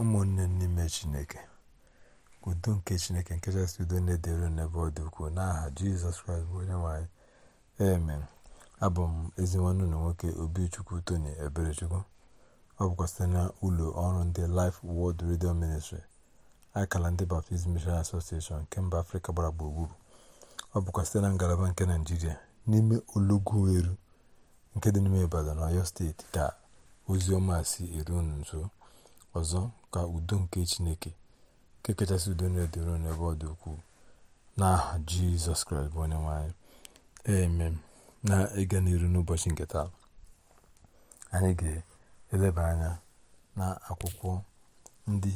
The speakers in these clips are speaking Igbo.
ụmụnne n'ime chineke udo nke chineke nke chasị udo na-edere n'ebe ọ dị ukwuu n'aha jizọs kraịst bụ onye nwanyị amen abụ m ezi nwanne ụlọ nwoke obichukwu tony eberechukwu ọ bụkwa site na ụlọ ọrụ ndị Life world Radio Ministry akala ndị Baptist Mission Association nke mba afrịka gbara gburugburu ọ bụkwa site na ngalaba nke naijiria n'ime olughueru nke dị n'ime ibadan ọyọ steeti ka ozi ọma si eru nso Ọzọ, ka udo nke Chineke, nke kachasị udo na edoro n'ebe ọ dị ukwuu, n'aha Jizọs Kraịst bụ onye nwanyị eme na ịga n'iru n'ụbọchị nke taa anyị ga-eleba anya na akwụkwọ ndị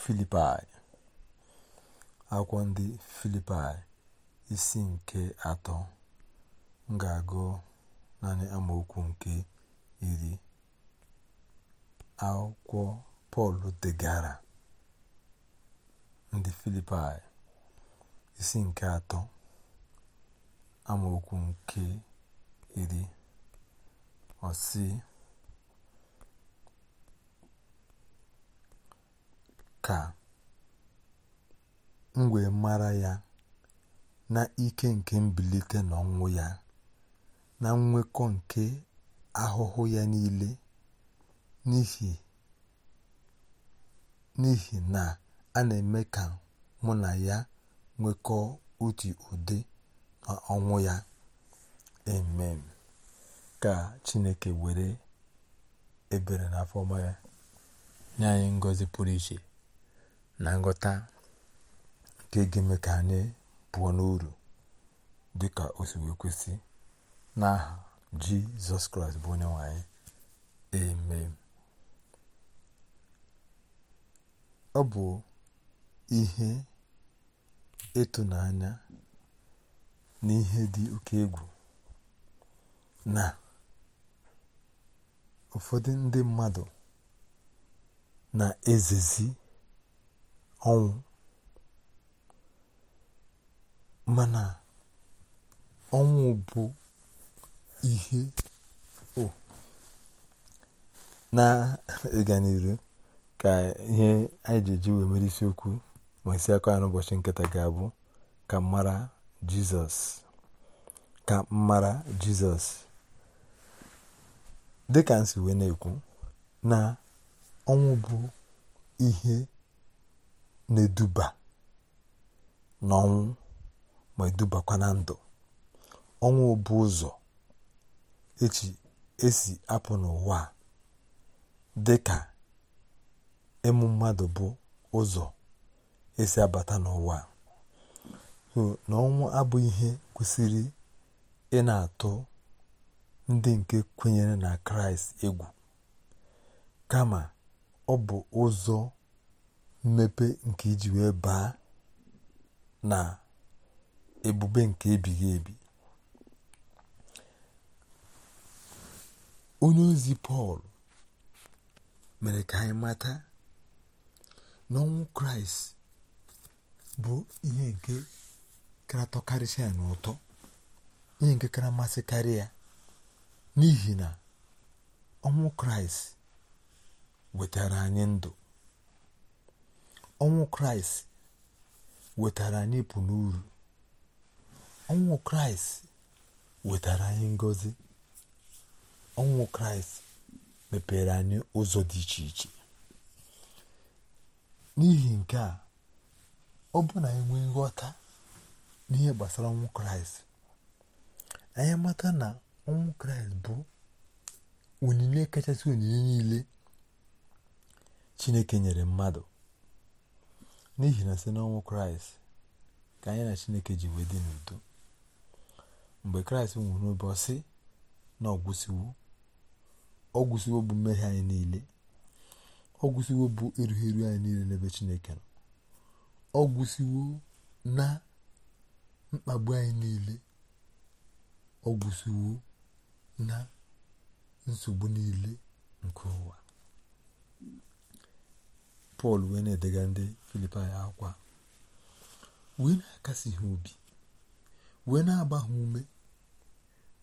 Filipai akwụkwọ ndị Filipai isi nke atọ m ga-agụ naanị amaokwu nke iri akwụkwọ pọl degara ndị filipaị isi nke atọ amaokwu nke iri ọsị ka m mara ya na ike nke mbilite n'ọnwụ ya na nnwekọ nke ahụhụ ya niile n'ihi n'ihi na a na-eme ka mụ na ya nwekọọ otu ụdị na ọnwụ ya amen ka chineke were ebere na afọma ya nye anyị ngọzi pụrụ iche na nghọta nke ga-eme ka anyị pụọ n'uru dị ka si wee kwesị n'aha jizọs kraịst bụ onye nwanyị anyị amen ọ bụ ihe ịtụnanya na ihe dị oke egwu na ụfọdụ ndị mmadụ na-ezezi ọnwụ mana ọnwụ bụ ihe oh, na-ịga ka ihe anyị ji eji wee mere isiokwu ma isi akọ ya n'ụbọchị nkịta ga-abụ ka mmara jizọs ka mmara jizọs dịka nsi wee na-ekwu na ọnwụ bụ ihe na-eduba n'ọnwụ ma edubakwa na ndụ ọnwụ bụ ụzọ echi esi apụ n'ụwa dịka. ịmụ mmadụ bụ ụzọ esi abata n'ụwa so na abụghị ihe kwesịrị ị na-atụ ndị nke kwenyere na kraịst egwu kama ọ bụ ụzọ mmepe nke iji wee baa na ebube nke ebighị ebi onye ozi pọl mere ka anyị mata n'ọnwụ kraịst bụ ihe nke kara ya n'ụtọ ihe nke kara masịkarị ya n'ihi na ọnwụ kraịst wetara anyị ndụ ọnwụ kraịst wetara anyị ịpụ n'uru ọnwụ kraịst wetara anyị ngozi ọnwụ kraịst mepere anyị ụzọ dị iche iche n'ihi nke a ọ bụ na anyị e nwee nghọta n'ihe gbasara ọnwụ kraịst anyị mata na ọnwụ kraịst bụ onyinye kachasị onyinye niile chineke nyere mmadụ n'ihi na site n'ọnwụ kraịst ka anyị na chineke ji wee dị n'udo mgbe kraịst nwụrụ ụbọchị na ọgwụsiwo ọgwụsiwo bụ mmehie anyị niile ọ gwụsiwo bụ eru anyị niile n'ebe chineke nọ ọ na mkpagbu anyị niile ọ na nsogbu niile nke ụwa pọl wee na-edega ndị filipaị akwa wee na-akasi ha obi wee na-agba ha ume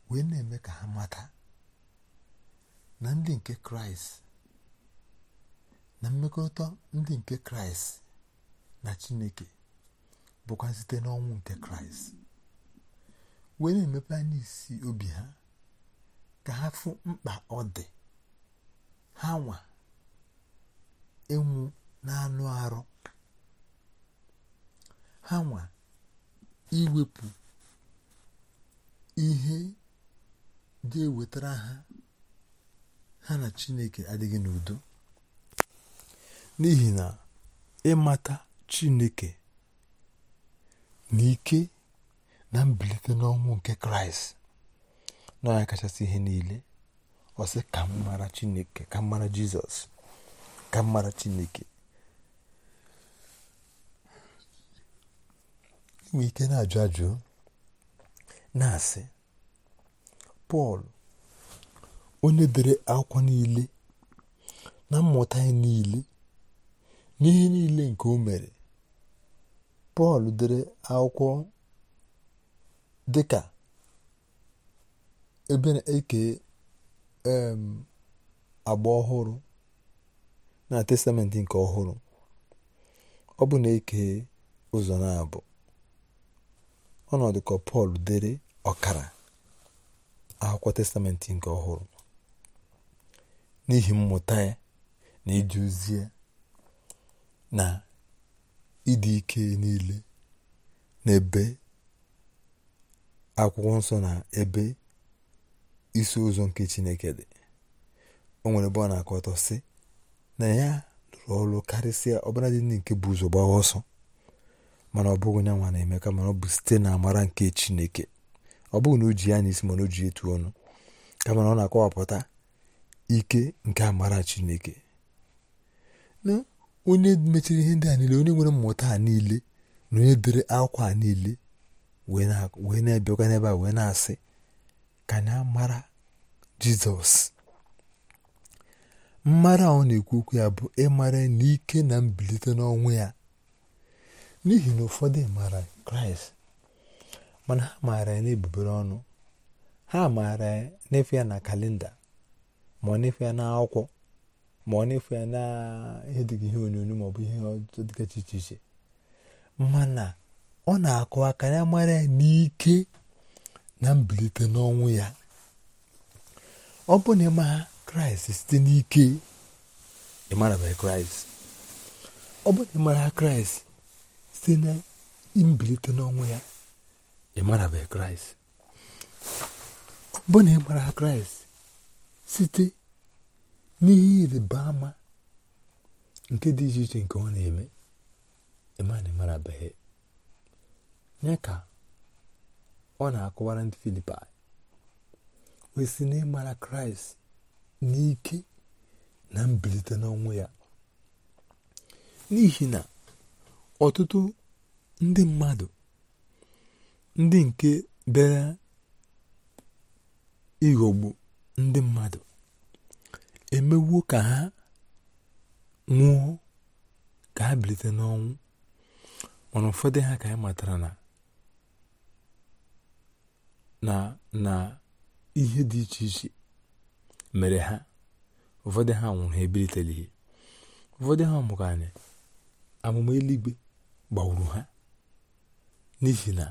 wee na-eme ka ha mata na ndị nke kraịst na mmekọrịta ndị nke kraịst na chineke bụkwa site n'ọnwụ nke kraịst wee na-emepe anya isi obi ha ka ha fụ mkpa ọ dị ha nwa ịnwụ na-anụ arụ ha nwa iwepụ ihe dị wetara ha ha na chineke adịghị n'udo n'ihi na ịmata Chineke na ike na mbilite n'ọnwụ nke Kraịst na ya kachasị ihe niile ọsị ka Chineke ka mara Jizọs ka mmara Chineke inwe ike na-ajụ ajụ na-asị Pọl onye dere akwụkwọ niile na mmụta ya niile n'ihe niile nke o mere pọl dere akwụkwọ dịka ebe na-eke agba ọhụrụ na testamentị nke ọhụrụ ọ bụ na-eke ụzọ na-abụ ọnọdụ ka pọl dere ọkara akwụkwọ testamentị nke ọhụrụ n'ihi mmụta ya na ije ozi na ịdị ike niile n'ebe akwụkwọ nsọ na ebe isi ụzọ nke Chineke dị o nwere ebe ọ na-akọ ọtọ sị na ya lụrụ ọrụ karịsịa ọbara dị ndị nke bụ ụzọ gbaa ọsọ mana ọ bụghị nyanwa na-eme ka mana ọ bụ site na amara nke Chineke ọ bụghị na o ji ya isi mana o ji etu ọnụ kama na ọ na-akọwapụta ike nke amara Chineke onye mechiri ihe ndị a niile onye nwere mmụta a niile na onye dere akwa niile wee na ebịakwa n'ebe a wee na-asị ka anyị mara jizọs mmara ọ na-ekwu okwu ya bụ ịmara n'ike na mbilite n'ọnwụ ya n'ihi na ụfọdụ mara kraịst mana ha maara ya n'ebubere ọnụ ha maara ya n'efe ya na kalenda ma ọ n'efe ya n'akwụkwọ ma ọ na-efu ya na ihe dịka ihe onyonyo maọbụ ihe ọtụtụ dịgachi iche iche mana ọ na-akụ aka ya mara ya n'ike na mbilite n'ọnwụ ya ọ bụ na ịma kraịst site n'ike ịmarabeghị kraịst ọ bụ na ịmara kraịst site na mbilite n'ọnwụ ya ịmarabeghị kraịst ọ bụ na ịmara kraịst site n'ihe ịrịba ama nke dị iche iche nke ọ na-eme ịmana marabeghị ya ka ọ na-akọwara ndị filipi wee sị na ịmara kraịst n'ike na mbilite n'ọnwụ ya n'ihi na ọtụtụ ndị mmadụ ndị nke bịara ịghọgbu ndị mmadụ emewuo ka ha nwụọ ka ha bilite n'ọnwụ mana ụfọdụ ha ka anyị matara na na ihe dị iche iche mere ha ụfọdụ ha nwụrụ ha ihe ụfọdụ ha mụrụ anyị amụma eluigwe gbagburu ha n'ihi na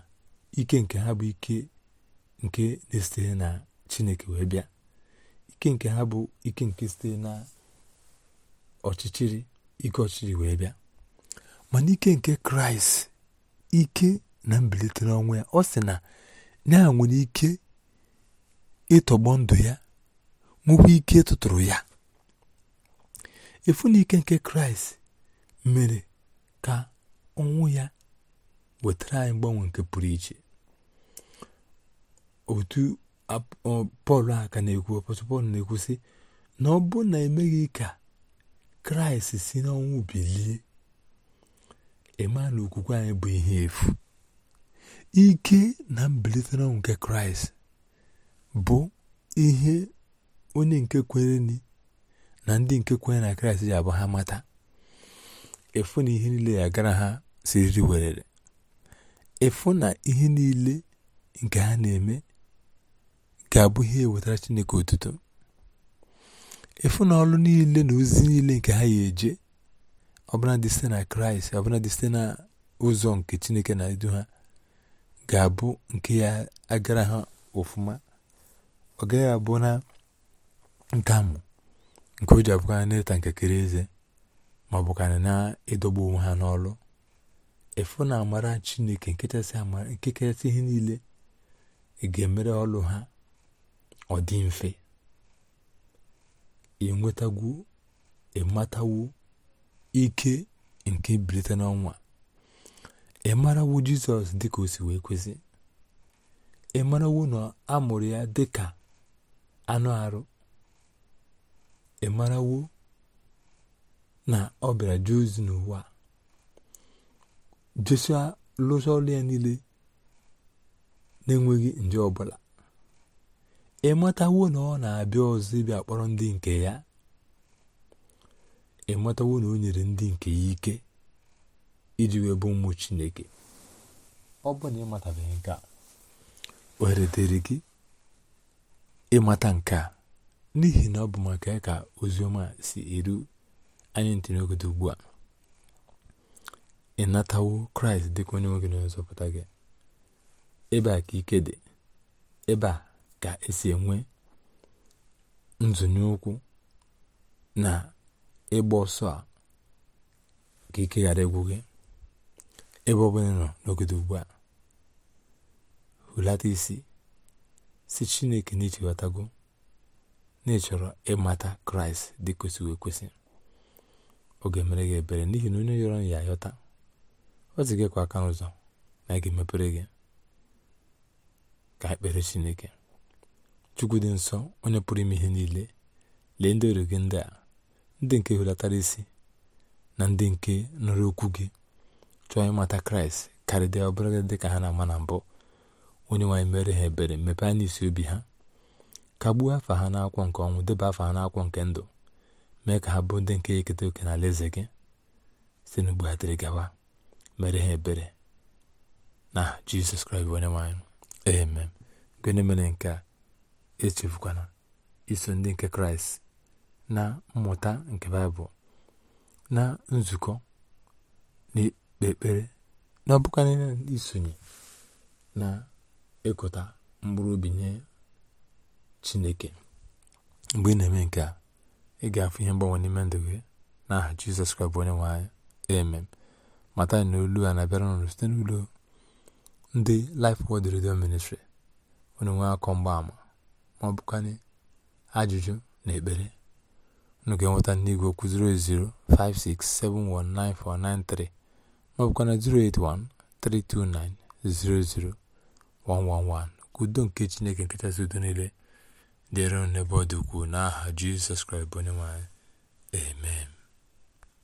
ike nke ha bụ ike nke na-esitere na chineke wee bịa ike nke ha bụ ike nke site na ọchịchịrị ike ọchịchịrị wee bịa mana ike nke kraịst ike na mbilite n'ọnwụ ya ọ sị na ya nwere ike ịtọgbọ ndụ ya nwekwa ike ịtụtụrụ ya efu na nke kraịst mere ka ọnwụ ya wetara anyị mgbanwe nke pụrụ iche otu pọl a ka na-ekwu ọpọtụl pọl na-ekwu sị na ọ bụ na emeghị ka kraịst si n'ọnwụ bilie ịma na okwukwe anyị bụ ihe efu ike na mbilite n'ọnwụ nke kraịst bụ ihe onye nke kwere na ndị nke kwere na kraịst ji abụ ha mata efu na ihe niile ya gara ha siriri werere efu na ihe niile nke ha na-eme ga-abụ ihe ewetara Chineke otuto efu na ọlụ niile na ozi niile nke ha ya eje ọbụladị site na kraịst ọbụladị site na ụzọ nke chineke na-edu ha ga-abụ nke ya agara ha ofụma ọ gaghị abụ na nkamụ nke o ji abụkarị n'ịta nkekere eze ma ọ bụkarị na-ịdọgbu onwe ha n'ọlụ efu na amara chineke nke kachasị ihe niile ga-emere ọlụ ha ọ dị mfe enwetagwu ịmatawo ike nke bilite n'ọnwa marawo jizọs dịka o si wee kwesị ịmarawo na a mụrụ ya dịka anụ arụ ịmarawo na ọ bịara jee ozi n'ụwa jesia lụsa ọrụ ya niile na-enweghị nje ọbụla ịmatawo na ọ na-abịa ọzọ ibi akpọrọ ndị nke ya ịmatawo na o nyere ndị nke ya ike iji wee bụ ụmụ chineke ọ bụ na ịmatabeghị nke a ohere dịrị gị ịmata nke a n'ihi na ọ bụ maka ya ka oziọma si eru anyị ntị ugbu a ịnatawo kraịst dịka onye nwoke na nzọpụta gị ebe a ka ike dị ebe a ka esi enwe nzụnye ụkwụ na ịgba ọsọ a ka ike ghara egwu gị ebe ọbụla nọ n'ogede ugbu a hulata isi si chineke na ichewatago na ịchọrọ ịmata kraịst dị kwesịrị ekwesị ọ ga-emere gị ebere n'ihi na onye yọrọ ya ayọta ọ zigakwa aka n'ụzọ na ị ga-emepere gị ka ekpere chineke chukwu dị nsọ onye pụrụ ime ihe niile lee ndị ọrụ gị ndị a ndị nke hulatara isi na ndị nke nụrụ okwu gị chọọ ịmata kraịst karịdịa ọbụla dị ka ha na-ama na mbụ onye nwaanyị mere ha ebere mepee anya isi obi ha kagbuo afa ha na-akwọ nke ọnwụ deba afa ha na-akwọ nke ndụ mee ka ha bụ ndị nke eketa oke na eze gị site n'ugbu ha dịrị gawa mere ha ebere na jizọs kraịst onye nwaanyị amen gịnị mere nke a echefukwana iso ndị nke kraịst na mmụta nke baịbụl na nzukọ na ikpe ekpere na isonye na ịkụta mkpụrụ obi nye chineke mgbe ị na-eme nke a ị ga-afụ ihe mgbanwe n'ime ndụ gị n'aha jizọs kraịst bụ onye nwe anyị amen mata na olu a na-abịara n'ụlọ site n'ụlọ ndị lif Word Radio Ministry onye nwe akọ mgbaama ma ajụjụ na ekpere unu ga-enweta n'igwe okwu 08056719493 ma ọ bụkwanụ 08132900111 ka udo nke Chineke nke kachasị udo niile dịrị n'ebe ọ dị ukwuu n'aha Jizọs Kraịst bụ onye amen